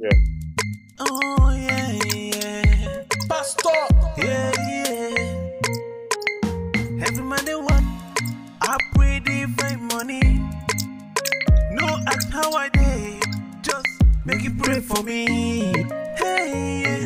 Yeah. Oh, yeah, yeah. Pastor! Yeah, yeah. Every man they want, I pray they find money. No, ask how I did. just make you pray for me. Hey, yeah.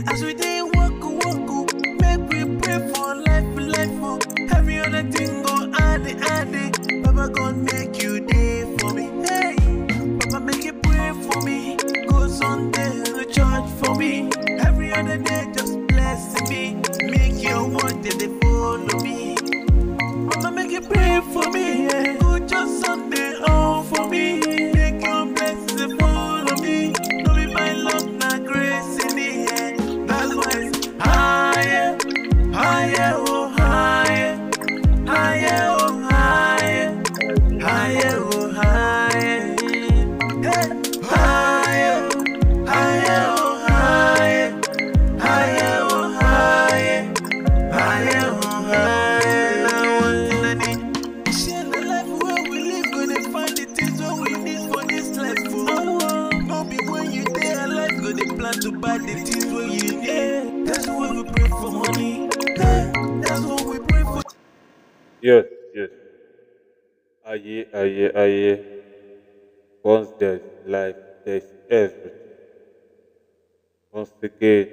aye, aye, aye. Once there's life, there's everything. Once again,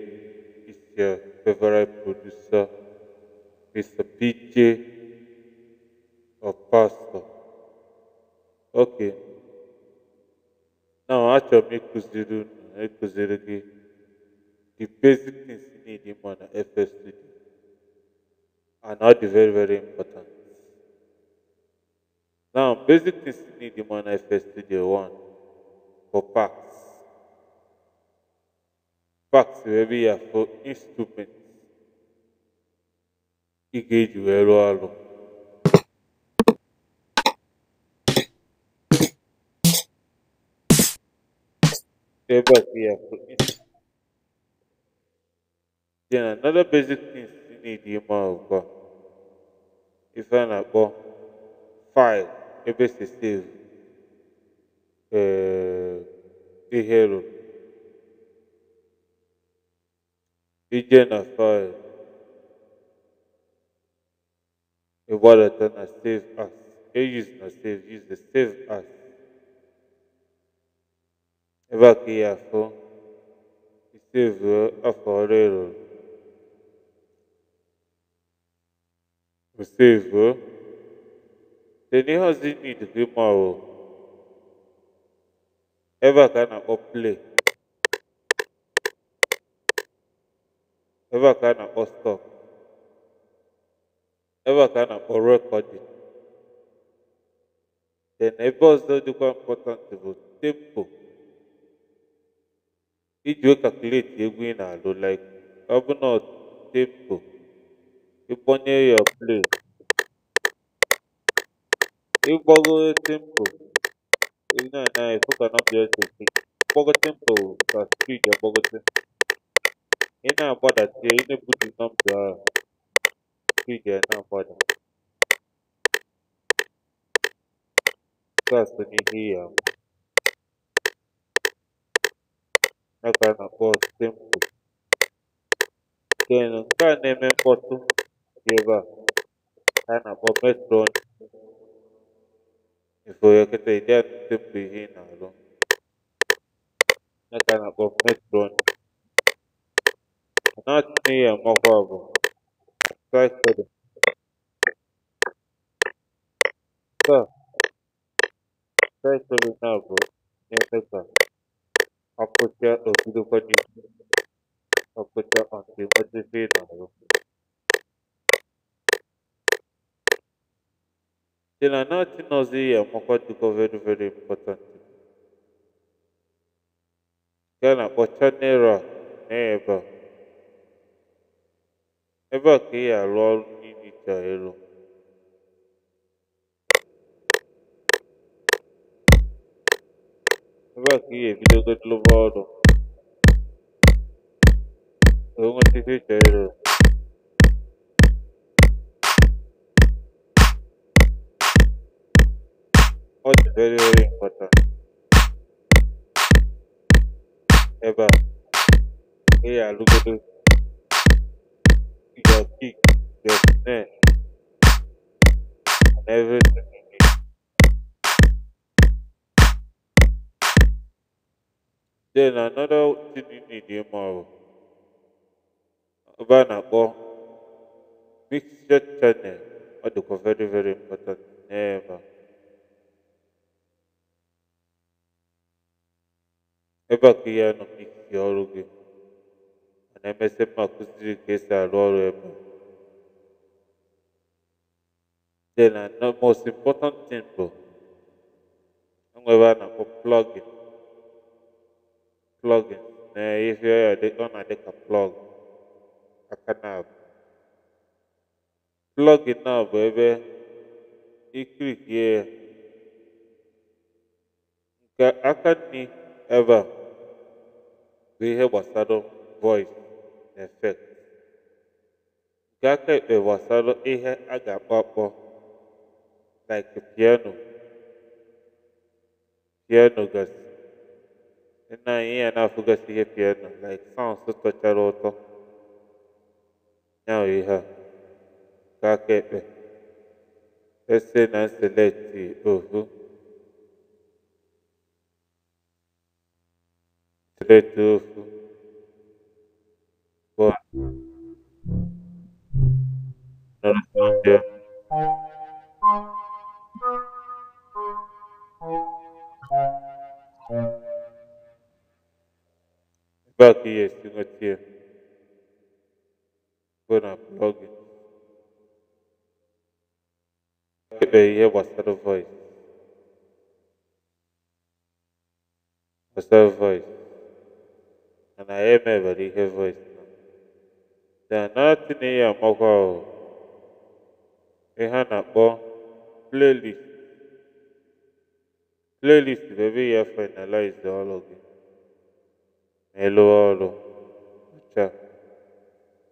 it's your favorite producer, Mr. PJ or Pastor. Okay. Now, acho me kuziru, me kuziru ki. The basic things you need in FS Studio are not very, very important. Now, basic things you need in Manifest Studio one for packs. Packs wherever you are for instruments. He gave you a rụọ ọrụ. Ebe a ya for instruments. Then another basic things you need in Manifest Studio 1 ife a na-akpọ file. Ebecessivo, é, Guerreiro, vai Fire, embora Tana tá save us, eles não save, eles save us. Eva que a e esteve a foreiro. Esteve The new has the need to a Ever na up play. Ever na up stop. Ever can up record it. The neighbors don't important to tempo. Iji calculate egwu ị na-alụ like ọ bụ na tempo ịkpọnye ya play de tempo. Não, não, foca não direto. de tempo, tá speed, boga tempo. E não bora ter, e não pode não pra speed, não bora. Gasta energia. Na cara, boa tempo. Quem não tá nem me importa, leva. Tá na boa metrônica. Ngizoyekhetha ithathe beginner lo. Nakana kwa metron. Not me a mobile. Try for them. Sir. Try for them now, bro. Never. I'll put you a video for you. I'll put you on the ni. Pela noite nós íamos quando o governo veio importante. Gana, botaneira, neba. Eba que ia lol ninita elo. Eba que ia video get lovado. Eu não te fiz elo. very very important ebe a ị ya alụgodo your kick your snare and everything you need then another thing you need ịma ọ ebe a na-akpọ mixture channel ọ dịkwa very very important n'ebe ebe a ka ihe nọ n'ikike ọrụ gị mana emesịa mma kụziri ka esi arụ ọrụ ebe na the most important thing bụ enwebe a na-akpọ plugin plugin na ihe ọ na-adị ka plug aka na plugin na bụ ebe ikirikie nke aka n'i ebe a ihe gbasara voice effect nke aka ekpe gbasara ihe a ga-akpọ akpọ like piano piano gasị nna anyị ya na-afụgasị ihe piano like sounds tọchara ụtọ ya ihe a nke aka ekpe ese na select ohu Tartufo. Boa. Não respondeu. Qual que é esse motivo? Foi na blog. Eu ia mostrar o voice. Mostrar o voice. anaeme barike voice danati na ihe amakwa ahụ ihe a na-akpọ playlist playlist bụ ebe ya finalize ọrụ gị na ịlụ ọrụ ọcha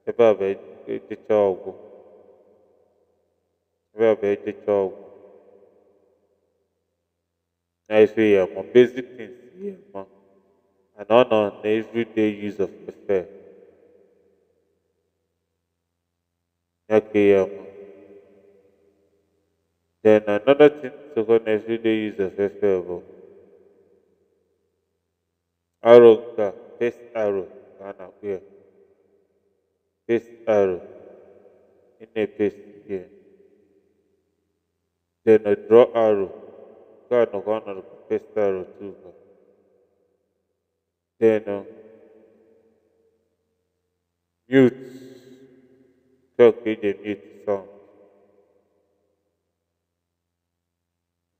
ebe a bụ ejecha ọgwụ ebe a bụ ejecha ọgwụ na ife ya ma basic things ya ma and honor na everyday use of affair. Yakeyama. Then another thing to go everyday use of affair bụ arrow face arrow ka a na-akpụ arrow. In a face ya. Then a draw arrow. Nke a nọkwa ọnọdụ face arrow too then mute talk with the mute sound.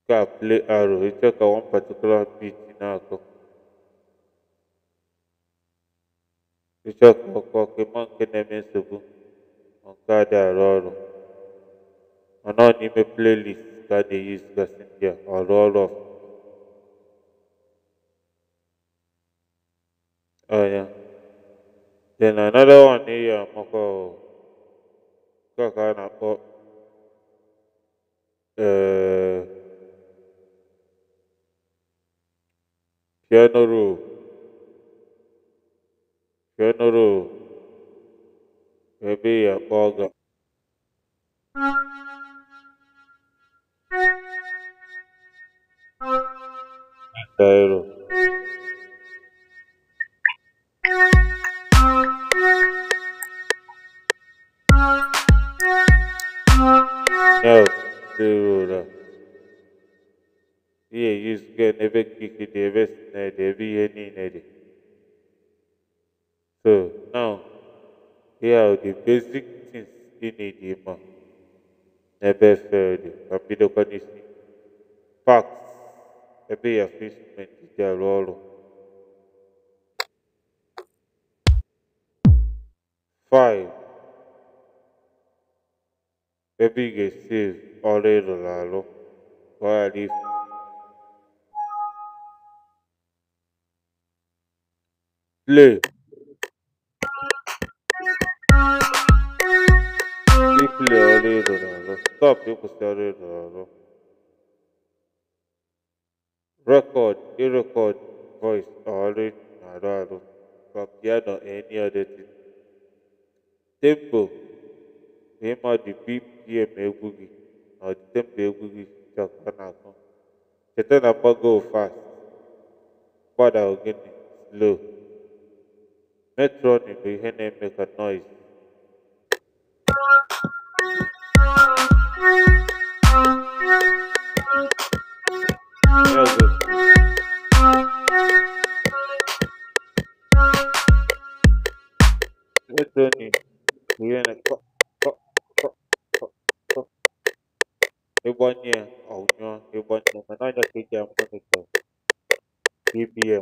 You can play arrow, you talk on one particular beat in arrow. You talk on cocky monkey name subu on card arrow. on playlist that they use Gassindia or all of Oh yeah. Then another one here, Moko Kakana Pop. Uh, piano roll. Piano roll. Maybe a bogger. Dairo. ebe kiki de ebe sine de ebe ihe so now here are the basic things you need ịma n'ebe efere facts ebe ya instrument dị arụ ọrụ five ebe ị ga-esi ọrụ ịrụrụ arụ le. Stop Record, you record voice, All I not from piano, any other thing. Tempo, name of the BPM Egugi, or the Tempo Egugi, Chakanako. Chetan Apago fast, Pada Ogini, slow. Metron in the Hene make a noise. Here's it. Metron in the Hene cop, cop, cop, cop, cop. Ebonye, oh no, Ebonye, I know that I'm going to go. BBM.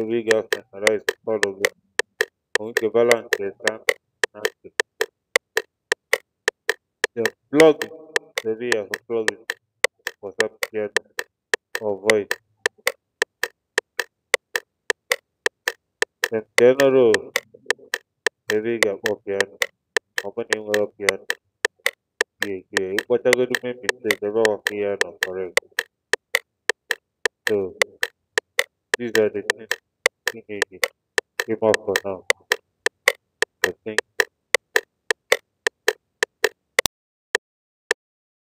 Rodriguez Alcaraz The blog the via for was up here or voice. general the via for opening your piano. Yeah, yeah, what I'm going to make mistake, the raw piano correct. So, these are the things. you need to give up for now. I think